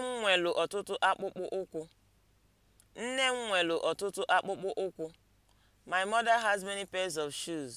m nwelu ọtụtụ akpụkpọ ụkwụ. Nne m nwelu ọtụtụ akpụkpọ ụkwụ. My mother has many pairs of shoes.